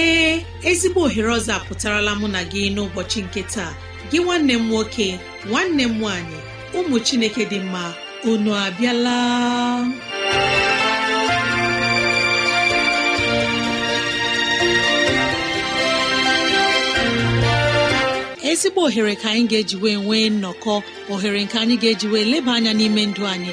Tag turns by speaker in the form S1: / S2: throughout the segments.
S1: ee ezigbo ohere ọzọ apụtarala mụ na gị n'ụbọchị nke taa gị nwanne m nwoke nwanne m nwaanyị ụmụ chineke dị mma unu abịala ezigbo ohere ka anyị ga-eji wee nwee nnọkọ ohere nke anyị ga-eji wee leba anya n'ime ndụ anyị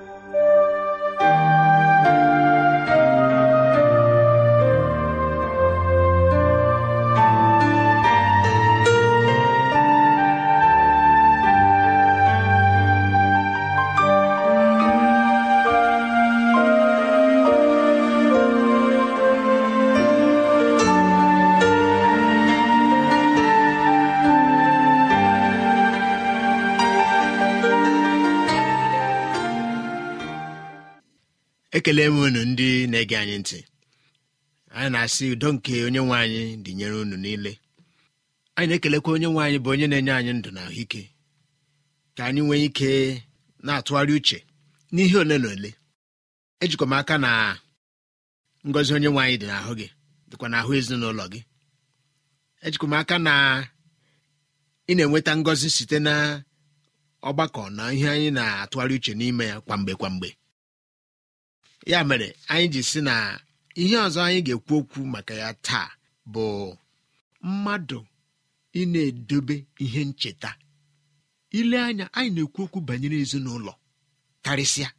S2: ekele unu ndị na-ege anyị ntị anyị na-asị udo nke onye nwe anyị dịnyere unu niile anyị na-ekelekwa onye nwe anyị bụ onye na-enye anyị ndụ na ahụike ka anyị nwee ike na-atụgharị uche n'ihe ole na ole ejikwa m aka na ngozi onye nwe anyị dị n'ahụ gị dịkwa n'ahụ ezinụlọ gị ejikwa m aka na ị na-enweta ngozi site na ọgbakọ na ihe anyị na-atụgharị uche n'ime ya kwamgbe kwamgbe ya mere anyị ji si na ihe ọzọ anyị ga-ekwu okwu maka ya taa bụ mmadụ ị na edebe ihe ncheta ile anya anyị na-ekwu okwu banyere ezinụlọ karịsịa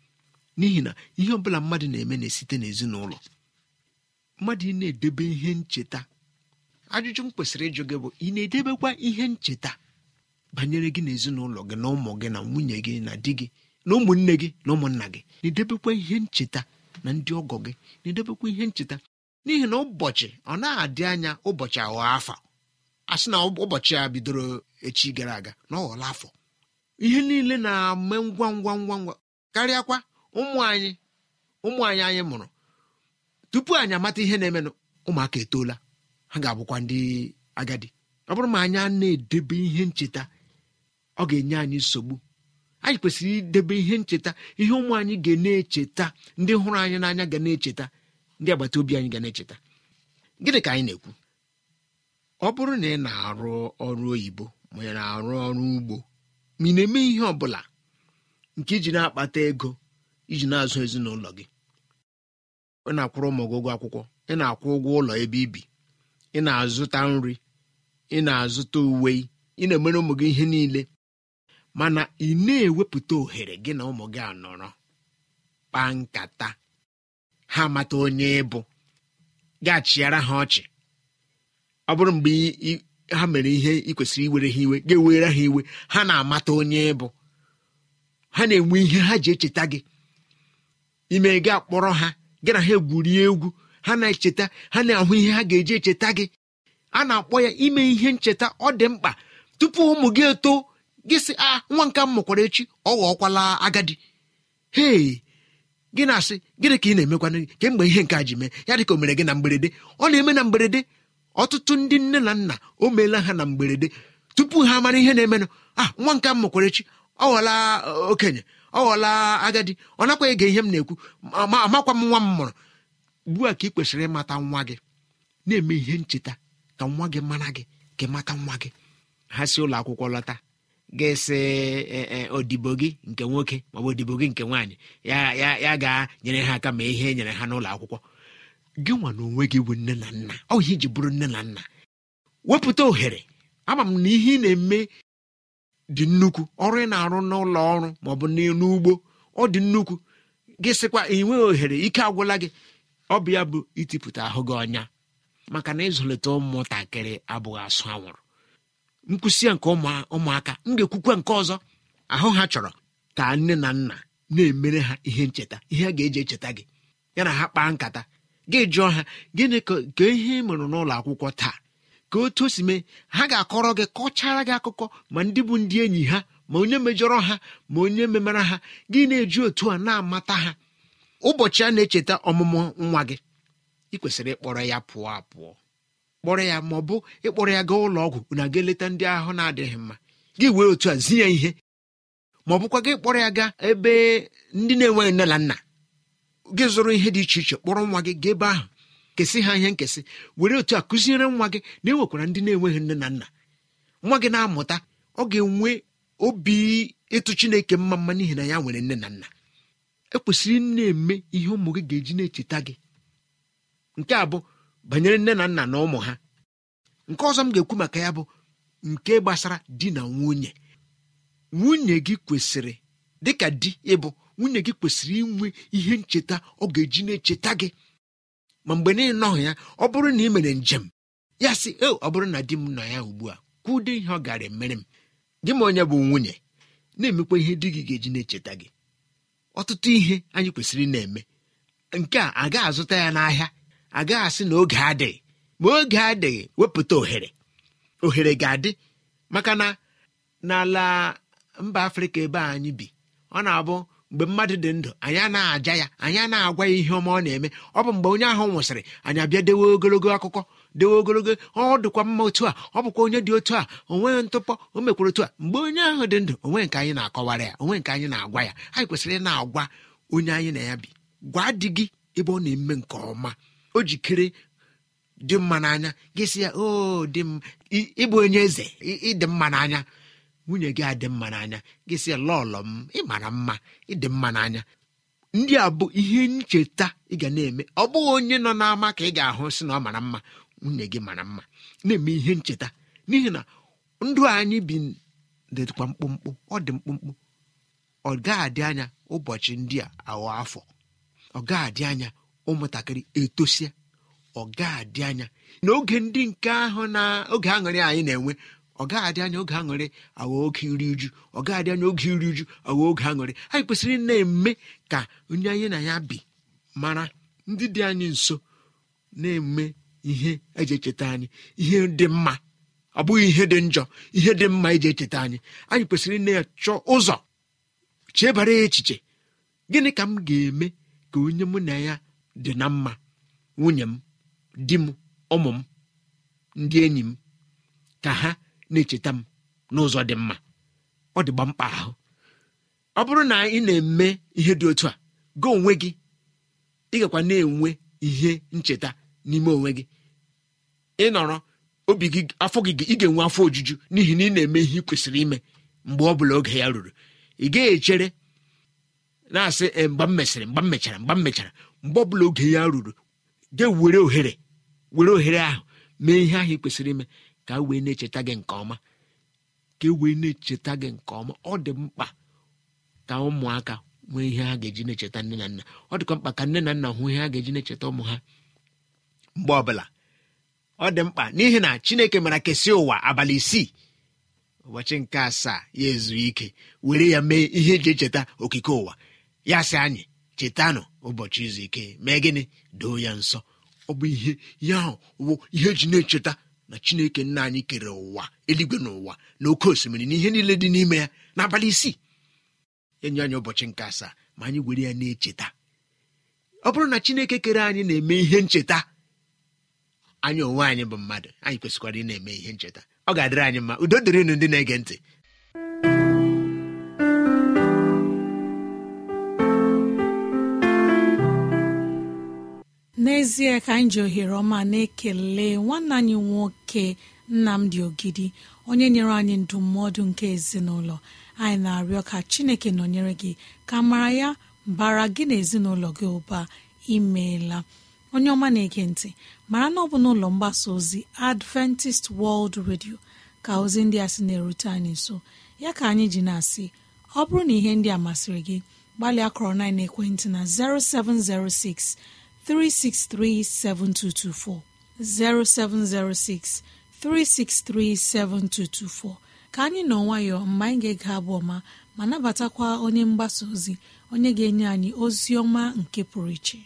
S2: n'ihi na ihe ọbụla mmadụ na-eme na-esite n'ezinụlọ mmadụ ị na-edebe ihe ncheta ajụjụ m kwesịrị ịjụ gị bụ ị na-edebekwa ihe ncheta banyere gị na gị na ụmụ gị na nwunye gị na di gị na ụmụnne gị na ụmụnna gị na-edebekwa ihe ncheta na ndị ọgọ gị na-edebekwa ihe ncheta n'ihi na ụbọchị ọ na-adị anya ụbọchị aghọọ afa a na ụbọchị a bidoro echi gara aga na ọ afọ ihe niile na-eme ngwa ngwa ngwa ngwa karịakwa ụmụ anyị ụmụ anyị anyị mụrụ tupu anyị amata ihe na-emenụ ụmụaka etoola ha ga-abụkwa ndị agadi ọ bụrụ ma anyị a na-edebe ihe ncheta ọ ga-enye anyị nsogbu anyị kwesịrị idebe ihe ncheta ihe ụmụ anyị ga na-echeta ndị hụrụ anyị n'anya ga na-echeta ndị agbata obi anyị ga na-echeta gịnị ka anyị na-ekwu ọ bụrụ na ị na-arụ ọrụ oyibo ma ị na-arụ ọrụ ugbo ma ị na-eme ihe ọ bụla nke iji na-akpata ego iji na-azụ ezinụlọ gị ị na-akwụrụ ụmụ gị ụgwọ akwụkwọ ị na-akwụ ụgwọ ụlọ ebe ibi ị na-azụta nri ị na-azụta uwe ị na-emere ụmụ gị ihe niile mana ị na-ewepụta ohere gị na ụmụ gị anọrọ kpaa nkata ha mata onye ịbụ ga-achịara ha ọchị ọ bụrụ mgbe ha mere ihe ị kwesịrị iwere ha iwe ga-ewere ha iwe ha na-amata onye ịbụ ha na-enwe ihe ha ji echeta gị ime gị akpọrọ ha gị na ha egwuri egwu ha na-echeta ha na-ahụ ihe ha ga-eji echeta gị a na-akpọ ya ime ihe ncheta ọ dị mkpa tupu ụmụ gị eto gị sị a ah, nwa nke m mụkwara echi ọ ghọọkwala agadi hei gị na-asị gịnị ka ị na-emekwana gị kemgbe ihe nke a ji mee ya dịka o mere gị na mgberede ọ na-eme na mgberede ọtụtụ ndị nne na nna o meela ha na mgberede tupu ha mara ihe na-emenụ a ah, nwa nke m mụkwara echi ọ ghọla eh, okenye ọ ghọọla agadi ọ nakwa ege ihe m na-ekwu amakwa m nwa m mụrụ ugbu a ka ị kwesịrị ịmata nwa gị na-eme ihe ncheta ka nwa gị mara gị ka ịmata nwa gị ha si ụlọ akwụkwọ lọta ga-esi e, e, odibo gị nke nwoke maọbụ odibo gị nke nwaanyị ya ga-nyere ha aka ma ihe e nyere ha n'ụlọ akwụkwọ gị nwa na onwe gị bụ nne na nna ọ ihe iji bụrụ nne na nna wepụta ohere ama m na ihe ị na-eme dị nnukwu ọrụ ị na-arụ n'ụlọ ọrụ maọbụ n'ugbo ọ dị nnukwu gị sịkwa enweghị ohere ike agwụla gị ọ bụ ya bụ itipụta ahụ gị ọnya maka na ịzụlite ụmụntakịrị abụghị asụ anwụrụ nkwụsị ya nke ụmụaka m ga-ekwukwa nke ọzọ ahụ ha chọrọ ka nne na nna na-emere ha ihe ncheta ihe a ga-eji echeta gị ya na ha kpaa nkata gị jụọ ha gịnị ka ihe ị mụrụ n'ụlọ akwụkwọ taa ka otu o si mee ha ga-akọrọ gị kọchara gị akụkọ ma ndị bụ ndị enyi ha ma onye mejọrọ ha ma onye memara ha gị na-eji otu a na-amata ha ụbọchị a na-echeta ọmụmụ nwa gị ị kwesịrị ịkpọrọ ya pụọ apụọ kpọrọ ya ma ọ bụ ịkpọrọ ya gaa ụlọ ọgwụ na aga eleta ndị ahụ na-adịghị mma gị wee otu a zinye ya ihe ma ọ bụkwa gị kpọrọ ya gaa ebe ndị na-enweghị nne na nna gị zụrụ ihe dị iche iche kpọrọ nwa gị gaa ebe ahụ kesị ha ihe nkesị were otu a kụziere nwa gị na enwekwara ndị na-enweghị nne na nna nwa gị na-amụta ọ ga-enwe obi ịtụ chineke mma mma n'ihi na ya nwere nne na nna ekwesịrị na-eme ihe ụmụ gị ga-eji na-echeta gị nke a bụ banyere nne na nna na ụmụ ha nke ọzọ m ga-ekwu maka ya bụ nke gbasara di na nwunye nwunye gị kwesịrị dịka di ịbụ nwunye gị kwesịrị inwe ihe ncheta ọ ga-eji na-echeta gị ma mgbe niile nọhụ ya ọ bụrụ na ị mere njem ya sị e ọ bụrụ na di m nọ ya ugbu a kwuo ụdị ihe ọ gara emere m gị ma onye bụ nwunye na-emekwa ihe di gị ga-eji na-echeta gị ọtụtụ ihe anyị kwesịrị na-eme nke a agaghị azụta ya n'ahịa agaghị asị na oge adịghị ma oge adịghị wepụta ohere ohere ga-adị maka na n'ala mba afrịka ebe anyị bi ọ na-abụ mgbe mmadụ dị ndụ anyị na-aja ya anyị na-agwa ya ihe ọma ọ na-eme ọ bụ mgbe onye ahụ nwụsịrị anyị abịa dewe ogologo akụkọ dewe ogologo ọ dịkwa mma otu a ọ bụkwa onye dị otu a onweghị ntụpọ o mekwara otu a mgbe onye ahụ dị ndụ onwe nke anyị na-akọwara ya onwe nke anyị na-agwa ya anyị kwesịrị ịna na-agwa onye anyị na ya bi gwa di gị ebe ọ na-eme nke ọma o jikere dị mma n'anya gịsịa sị ya dị ịbụ onye eze ịdị mma n'anya nwunye gị adị mma n'anya gịsịa ya lọlọ m ịmara mma ịdị mma n'anya ndị a bụ ihe ncheta ị ga na-eme ọ bụghị onye nọ n'ama ka ị ga-ahụ si na ọ mara mma nwunye gị mara mma na-eme ihe ncheta n'ihi na ndụ anyị bi dịkwa mkpụmkpụ ọ dị mkpụmkpụ ọ adị anya ụbọchị ndị a aghọ afọ ọ ga-adị anya ụmụntakịrị etosie ọ ga anya na oge ndị nke ahụ na oge aṅụrị anyị na-enwe ọ anya oge aṅụrị aghọ oge iri uju ọ anya oge iri uju aghọ oge aṅụrị anyị kwesịrị na-eme ka onye anyị na ya bi mara ndị dị anyị nso na-eme ihe eji echeta anyị ihe dị mma ọ bụghị ihe dị njọ ihe dị mma iji echeta anyị anyị kwesịrị na-achọ ụzọ chebara echiche gịnị ka m ga-eme ka onye mụ na ya dị na mma nwunye m di m ụmụ m ndị enyi m ka ha na-echeta m n'ụzọ dị mma ọ dịgba mkpa ahụ ọ bụrụ na ị na-eme ihe dị otu a gị onwe gị ị gakwa na-enwe ihe ncheta n'ime onwe gị ị nọrọ obi gị afọ gị ị ga-enwe afọ ojuju n'ihi na ị na-eme ihe ị kwesịrị ime mgbe ọ bụla oge ya ruru ị gaghị echere na-asị eh, mgbe m mesịrị mgbe m mechara mgbe m mechara mgbe ọbụla oge ya ruru gị were ohere were ohere ahụ mee ihe ahụ ị kwesịrị ime ka wee na-echeta gị nke ọma ka e wee na-echeta gị nke ọma ọ dị mkpa ka ụmụaka nwee ihe ha ga-eji na-echeta nne na nna ọ dịkwa mkpa ka nne na nna hụ ihe ha ga-eji na-echeta ụmụ ha mgbe ọbụla ọ dị mkpa n'ihi na chineke mara kesịa ụwa abalị isii ụbọchị nke asaa ya ezu ike were ya mee ihe eji echeta okike ụwa ya si anyị chetanụ ụbọchị izu ike mee gịnị doo ya nsọ ọ bụ ihe ya ahụ bụ ihe ji na-echeta na chineke nna anyị kere ụwa eluigwe na ụwa na oke osimiri na ihe niile dị n'ime ya n'abalị isii enye anyị ụbọchị nke asaa ma anyị were ya na-echeta ọ bụrụ na chineke kere anyị na-eme ihe ncheta anyị onwe anyị bụ mmadụ anyị kwesịkwara ị na-eme ihe ncheta ọ ga-adịrị anyị mma udo dịrịnụ ndị na-ege ntị
S1: n'ezie ka anyị ji ohere ọma na-ekele nwanne anyị nwoke nnamdi ogidi onye nyere anyị ndụmọdụ nke ezinụlọ anyị na-arịọ ka chineke nọnyere gị ka mara ya bara gị na ezinụlọ gị ụba imeela onye ọma na-ege ntị mara na ọ bụ n'ụlọ mgbasa ozi adventist world radio ka ozi ndị a sị na-erute anyị nso ya ka anyị ji na-asị ọ bụrụ na ihe ndị a masịrị gị gbalịa kọrọ na ekwentị na 0706 3637224 0706 3637224 ka anyị nọ nwayọọ mgbe anyị ga aga abụ ọma ma nabatakwa onye mgbasa ozi onye ga-enye anyị ozi ọma nke pụrụ iche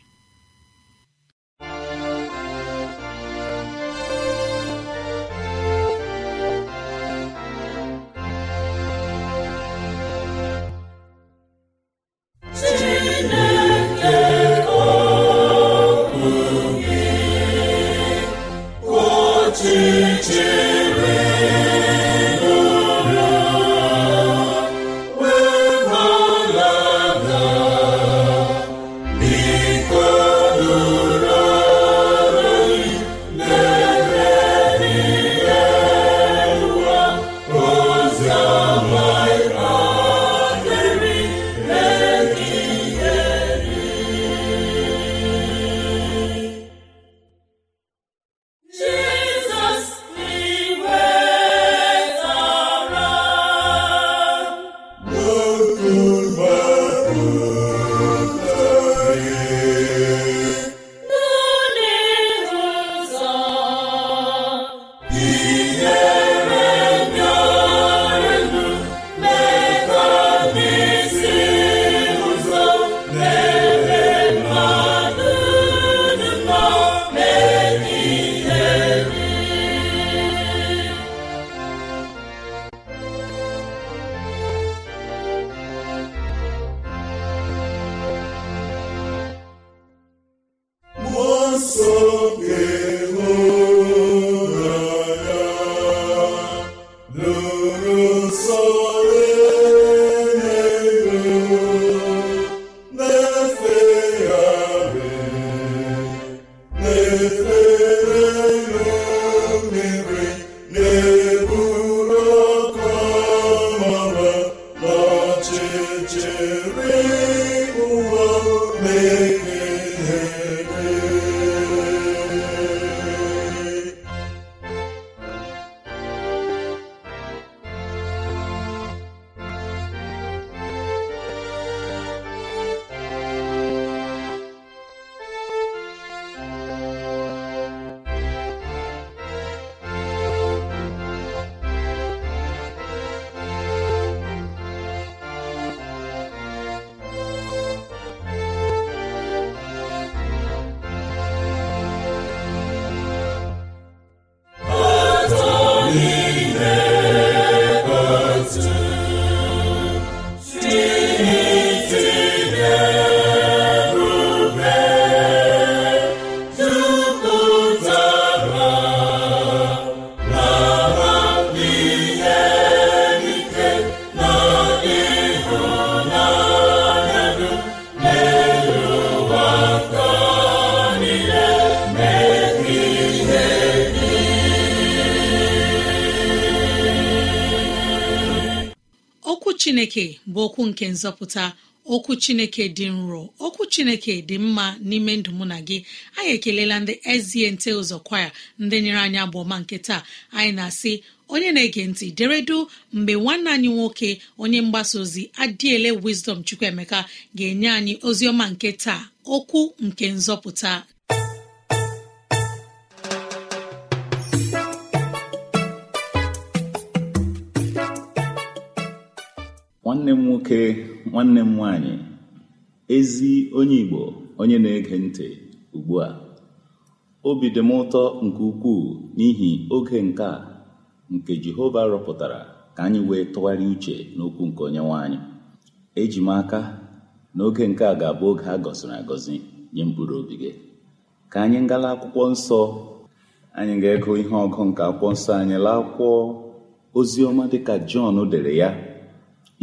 S1: chineke bụ okwu nke nzọpụta okwu chineke dị nro okwu chineke dị mma n'ime ndụ mụ na gị anyị ekelela ndị eziente ụzọ kwaya ndị nyere anyị agba ọma nke taa anyị na-asị onye na-ege ntị deredu mgbe nwanne anyị nwoke onye mgbasa ozi adịele Wisdom Chukwuemeka ga-enye anyị ozi ọma nke taa okwu nke nzọpụta
S3: nwanne m nwoke nwanne m nwanyị ezi onye Igbo onye na-ege ntị ugbu a obi dị m ụtọ nke ukwuu n'ihi oge nke a nke Jehova rọpụtara ka anyị wee tụgharịa uche n'okwu nke onye nwanyị eji m aka na oge nke a ga-abụ oge a gọziri agọzi nye mkpụrụ obi gị ka anyị ngala akwụkwọ nsọ anyị ga-ego ihe ọgụ nke akwụkwọ nsọ anyị laa akwụkwọ oziọma dịka Jọn dere ya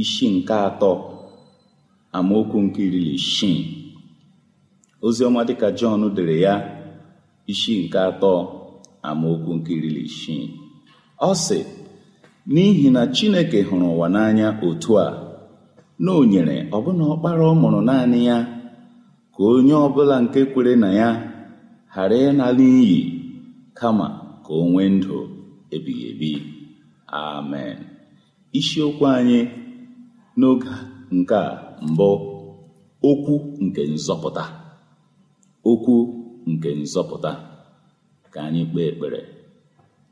S3: isi nke atọ amaokwu nke irili na Ozi oziọma dịka Jọn dere ya isi nke atọ amaokwu nke irili ọ sị n'ihi na Chineke hụrụ ụwa n'anya otu a na o nyere ọbụna ọkpara ọ mụrụ naanị ya ka onye ọbụla nke kwere na ya ghara ịnala iyi kama ka o ndụ ebighị ebi amen isiokwu anyị n'oge nke a mbụ okwu nke nzọpụta okwu nke nzọpụta ka anyị kpee ekpere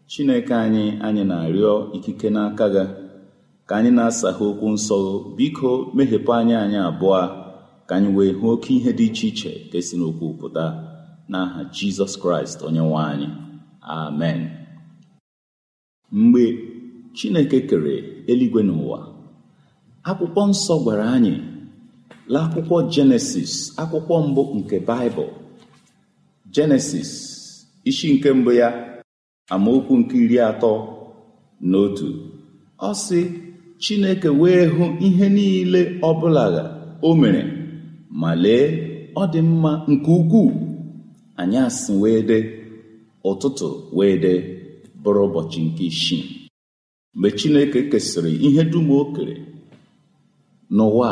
S3: chineke anyị anyị na-arịọ ikike n'aka gị ka anyị na ha okwu nsọ biko meghepụ anyị anyị abụọ ka anyị wee hụ oke ihe dị iche iche ka esi n'okwu pụta n'aha jizọs kraịst onye nwe anyị amen mgbe chineke kere eluigwe n'ụwa akwụkwọ nsọ gwara anyị n'akwụkwọ jenesis akwụkwọ mbụ nke baịbụl jenesis isi nke mbụ ya amaokwu nke iri atọ na otu ọ sị chineke wee hụ ihe niile ọbụla o mere ma lee ọ dị mma nke ukwuu anyị asị wee dee ụtụtụ wee dee bụrụ ụbọchị nke isii mgbe chineke kesịrị ihe dum o n'ụwa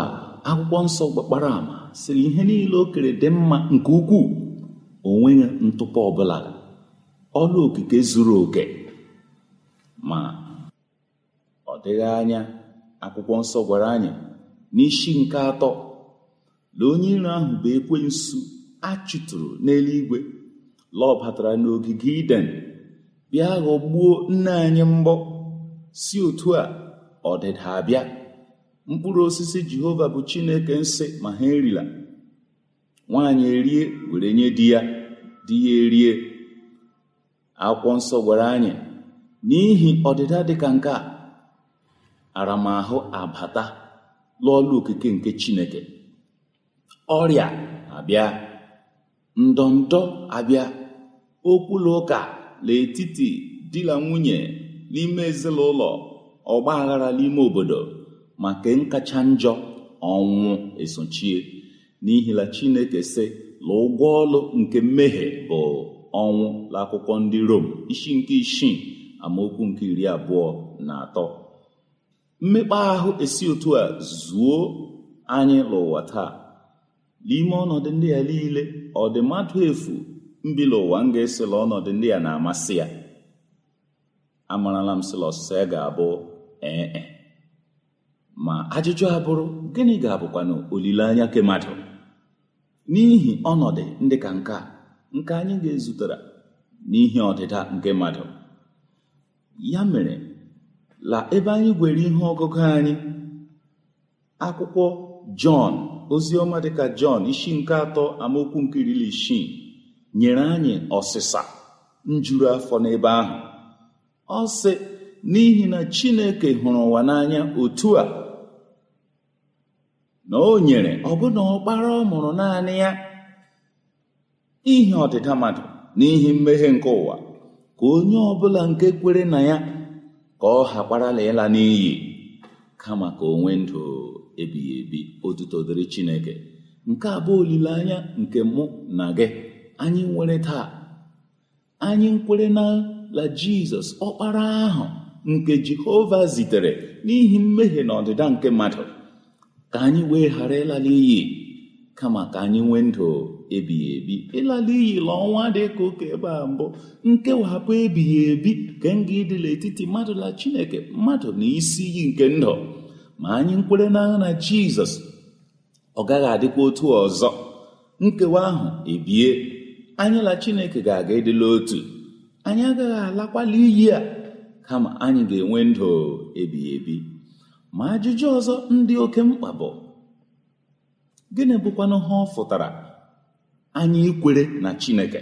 S3: akwụkwọ nsọ gbakpara ama sịrị ihe niile o kere dị mma nke ukwuu onwe ya ntụpọ ọbụla ọrụ okike zuru oke ma ọ dịghị anya akwụkwọ nsọ gwara anyị n'ishi nke atọ na onye iro ahụ bụ ekwensu a chụtụrụ n'eluigwe lọbatara n'ogige iden bịa ghọgbuo nne anyị mbọ si otu a ọdịda abịa mkpụrụ osisi jehova bụ chineke nsị ma ha erila nwaanyị erie were nye di ya di ya erie akwụkwọ nsọ gwara anyị n'ihi ọdịda dịka nke a aramahụ abata lụọla okike nke chineke ọrịa abịa ndọndọ abịa okwula ụka n'etiti di nwunye n'ime ezinụlọ ọgba aghara n'ime obodo ma nke nkacha njọ ọnwụ esochie n'ihila chineke sị la ụgwọ ọlụ nke mmehie bụ ọnwụ akwụkwọ ndị rom isi nke isii amaokwu nke iri abụọ na atọ mmekpa ahụ esi otu a zuo anyị n'ụwa taa n'ime ọnọdụ ndị a niile ọ dị mmadụ efu mbila m ga-esila ọnọdụ ndị a na-amasị ya amarala m sila ọsịsa ya ga-abụ ee e. ma ajụjụ abụrụ gịnị ga-abụkwanụ olileanya nke mmadụ n'ihi ọnọdụ ndị ka nke a nke anyị ga ezutere n'ihi ọdịda nke mmadụ ya mere la ebe anyị gwere ihe ọgụgụ anyị akwụkwọ jọn oziọma dịka jọn isi nke atọ amaokwu nke iri isii nyere anyị ọsịsa njuru afọ n'ebe ahụ ọ sị n'ihi na chineke hụrụ ụwa n'anya otu a na o nyere ọbụna ọkpara ọ mụrụ naanị ya n'ihi ọdịda mmadụ n'ihi mmehie nke ụwa ka onye ọbụla nke kwere na ya ka ọ hakparala ịla n'iyi kama ka onwe ndụ ebighị ebi otuto dịrị Chineke nke a bụ olileanya nke mụ na gị anyị nwere taa anyị nkwere na la Jizọs ọkpara ahụ nke Jehova zitere n'ihi mmehie na ọdịda nke mmadụ ka anyị wee ghara ịlala iyi kama ka anyị nwee ndụ ebighị ebi ịlala iyi e la ọnwa dị ka ụka ebe a mbụ nkewapụ ebighị ebi nke nga ịdịla etiti mmadụ na chineke mmadụ na isi iyi nke ndụ ma anyị nkwere n'agha na jizọs ọ gaghị adịkwa otu ọzọ nkewa ahụ ebie anyị la chineke ga-aga ịdịla otu anyị agaghị alakwala iyi a kama anyị ga-enwe e ndụ ebighị ebi ma ajụjụ ọzọ ndị oke mkpa bụ gịnị bụkwanụ ha ọ fụtara anyị ikwere na chineke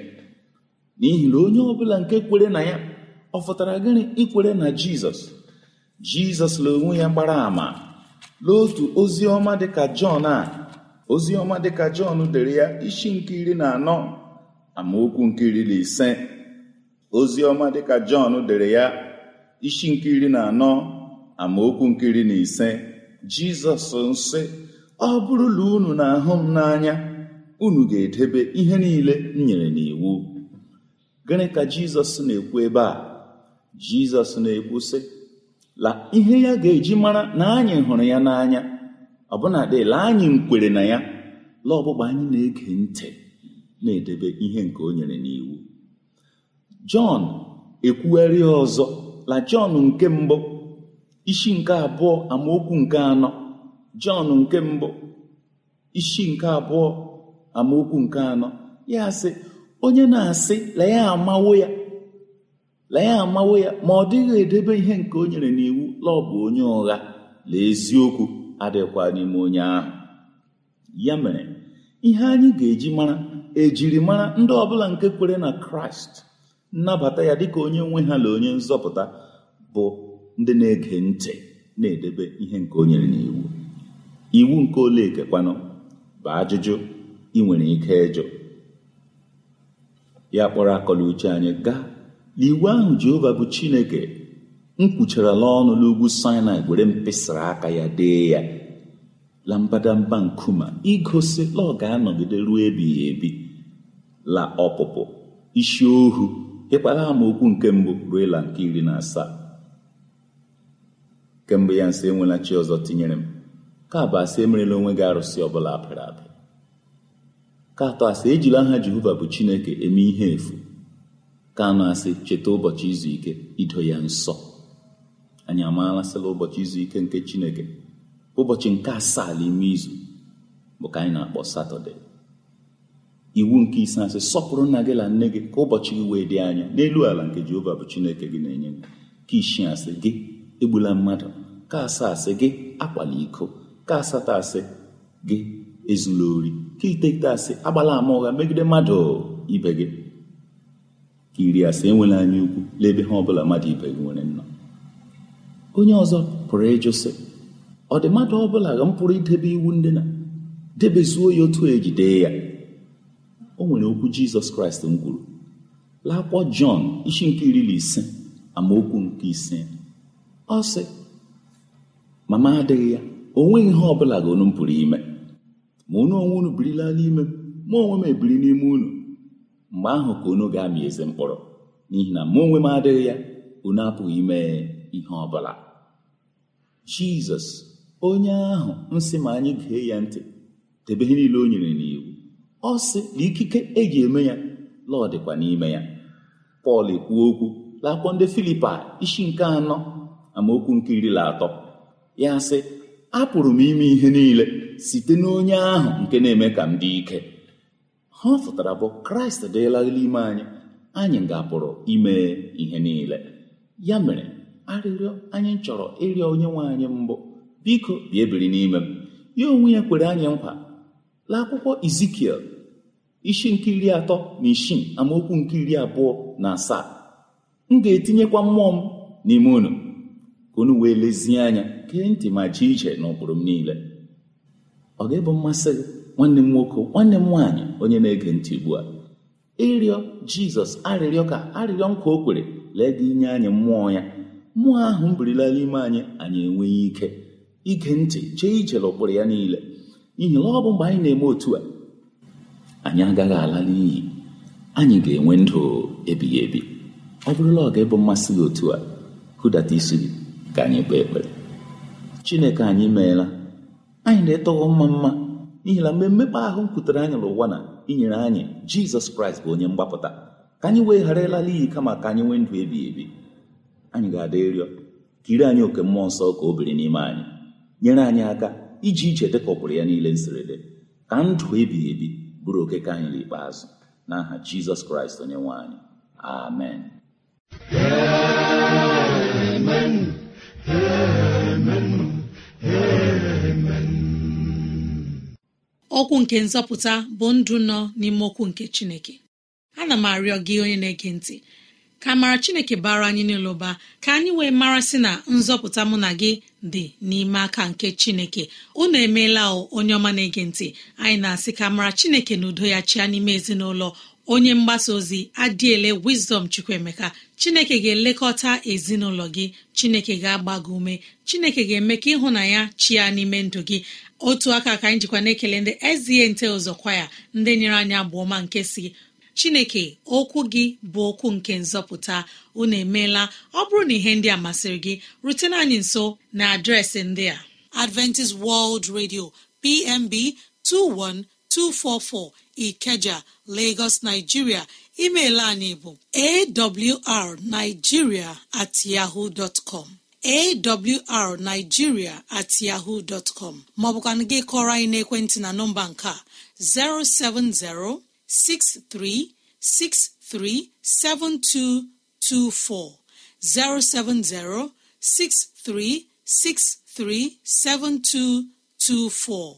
S3: n'ihi na onye ọbụla nke kwere na ya ọ fụtara gịnị ikwere na jizọs jizọs la onwe ya gbara ama n'otu ozi ọma dịka jọn a ozi ọma dịka jọn dere ya isi nke iri na anọ amaokwu nke na ise ozi ọma dịka jọn dere ya isi nke iri na anọ amaokwu nkiri na ise jizọs nsị ọ bụrụla unu na-ahụ m n'anya unu ga-edebe ihe niile m nyere n'iwu gịnị ka jizọs na-ekwu ebe a jizọs na-ekwu sị la ihe ya ga-eji mara na anyị hụrụ ya n'anya ọbụna dịla anyị nkwere na ya la ọgbụgba anyị na-ege ntị na-edebe ihe nke o nyere n'iwu jọn ekwugharị ọzọ la jọn nke mbụ isi nke abụọ amaokwu nke anọ jọn nke mbụ isi nke abụọ amaokwu nke anọ ya sị onye na-asị lee ya amawo ya amawo ya ma ọ dịghị edebe ihe nke o nyere n'iwu laọbụ onye ụgha la eziokwu adịkwa n'ime onye ahụ ya mere ihe anyị ga-eji mara ejirimara ndị ọbụla nke kwere na kraịst nnabata ya dịka onye nwe ha na onye nzọpụta bụ ndị na-ege ntị na-edebe ihe nke onyere n'iwu iwu nke ole ekekwanụ bụ ajụjụ ị nwere ike ịjụ ya kpọrọ akọla uche anyị gaa n'iwu ahụ Jehova bụ Chineke m kwucharala ọnụ n'ugwu Sinai were mpịsara aka ya dee ya la mbadamba nkume igosi la ọ ga-anọgide ruo ebighị ebi la ọpụpụ isi ohu ịkpara amaokwu nke mbụ ruo ịla nke iri na asaa kemgbe ya nsọ enwela chi ọzọ tinyere m ka abụ asị emerela onwe gị arụsị ọbụla apịrị apị ka atọ asị ejila aha jehova bụ chineke eme ihe efu ka anọ asị cheta ụbọchị izu ike ido ya nsọ anyị amaala sịla ụbọchị izu ike nke chineke ụbọchị nke asaa n'ime izu bụ ka anyị na-akpọ satọde iwu nke ise asị sọpụrụ nna gị na nne gị ka ụbọchị gị wee dị anya n'elu ala nke jehova bụ chineke gị na-enye gị ka ishi asị gị egbula mmadụ ka asaa asị gị akwala iko ka asatọ asị gị ezula ori ka iteghete asị agbala ama ụgha megide mmadụ ibe gị ka iri asị enwela anya ukwu n'ebe ha ọbụla mmadụ ibe gị nwere nnọọ onye ọzọ pụrụ ịjụ sị ọ dị mmadụ ọbụla ga m pụrụ idebe iwu ndị na debezuo ya otu ejide ya o nwere okwu jizọs kraịst m kwuru lakwụkwọ jọn isi nke iri na ise amaokwu nke ise ọ sị mama adịghị ya o nweghị ihe bụla ga unu pụrụ ime ma unu onwe unu birila n'ime mụ ma onwe m ebiri n'ime unu mgbe ahụ ka onu ga-amị eze mkpọrọ n'ihi na mụ onwe m adịghị ya unu apụghị ime ihe ọbụla jizọs onye ahụ nsị ma anyị gee ya ntị debe ihe niile o nyere n'iwu ọ sị na ikike eji eme ya lọọ dịkwa n'ime ya pọl ekwuo okwu lakwuo ndị filipa isi nke anọ amaokwu nke iri atọ ya sị apụrụ m ime ihe niile site n'onye ahụ nke na-eme ka m dị ike ha ọ pụtara bụ kraịst dịla ime anyị anyị ga-apụrụ ime ihe niile ya mere arịrịọ anyị chọrọ ịrịọ onye nwe anyị mbụ biko bia ebiri n'ime m ya onwe ya kwere anyị nkwa la akwụkwọ izikiel isi nke iri atọ na isi amaokwu nke iri abụọ na asaa m ga-etinyekwa mmụọ m n'ime unu ka unu wee lezie anya gee ntị ma jee iche na m niile ọ ga mmasị gị nwanne m nwoke nwanne m nwaanyị onye na-ege ntị ugbu a ịrịọ jizọs arịrịọ ka arịrịọ nkwa o kwere lee gị inye anyị mmụọ ya mmụọ ahụ m birila ime anyị anyị enweghị ike ige ntị chee ije n'ụkpụrụ ya niile ihi na ọ bụ mgbe anyị na-eme otu a anyị agaghị ala n'iyi anyị ga-enwe ndụ ebighị ebi ọ bụrụla ọ ga-ebu mmasị gị otu a hụdata isi gị ka anyị kpee ekpere chineke anyị meela anyị na-etọghọ mma mma n'ihi na mgbe mmekpa ahụ kwutere anyị n'ụwa na inyere anyị jizọs kraịst bụ onye mgbapụta ka anyị wee ghara ịlala iyi kama ka anyị nwee ndụ ebighị ebi anyị ga-ada ịrịọ ka ire anyị oke mmụọ nsọ ka o biri n'ime anyị nyere anyị aka iji iche dịkọpụrụ ya niile nsirede ka ndụ ebighị ebi bụrụ oke ka anyị n'ikpeazụ n'aha jizọs kraịst onye nwe anyị amen amen
S1: okwu nke nzọpụta bụ ndụ nọ n'ime okwu nke chineke ana m arịọ gị onye na-ege ntị ka mara chineke bara anyị n'ụlọ ụba ka anyị wee mara sị na nzọpụta mụ na gị dị n'ime aka nke chineke unu emeela onye ọma na-ege ntị anyị na-asị ka mara chineke na udo ya chịa n'ime ezinụlọ onye mgbasa ozi adịele Wisdom Chukwuemeka chineke ga-elekọta ezinụlọ gị chineke ga-agba gị ume chineke ga-eme ka ịhụ na ya chia n'ime ndụ gị otu aka ka anyị jikwa na-ekele ndị ezie nte ụzọ ndị nyere anyị abụọ ọma nke si chineke okwu gị bụ okwu nke nzọpụta unu emeela ọ bụrụ na ihe ndị a masịrị gị rutena anyị nso na adreesị ndị a Adventist World Radio PMB 21244 Ikeja Lagos, Nigeria email laa n'ebo awrnigeria at yahoo dot com. awrnigeria at yahoo dot anyị n'ekwentị na nọmba nke a, 070-6363-7224, 070-6363-7224.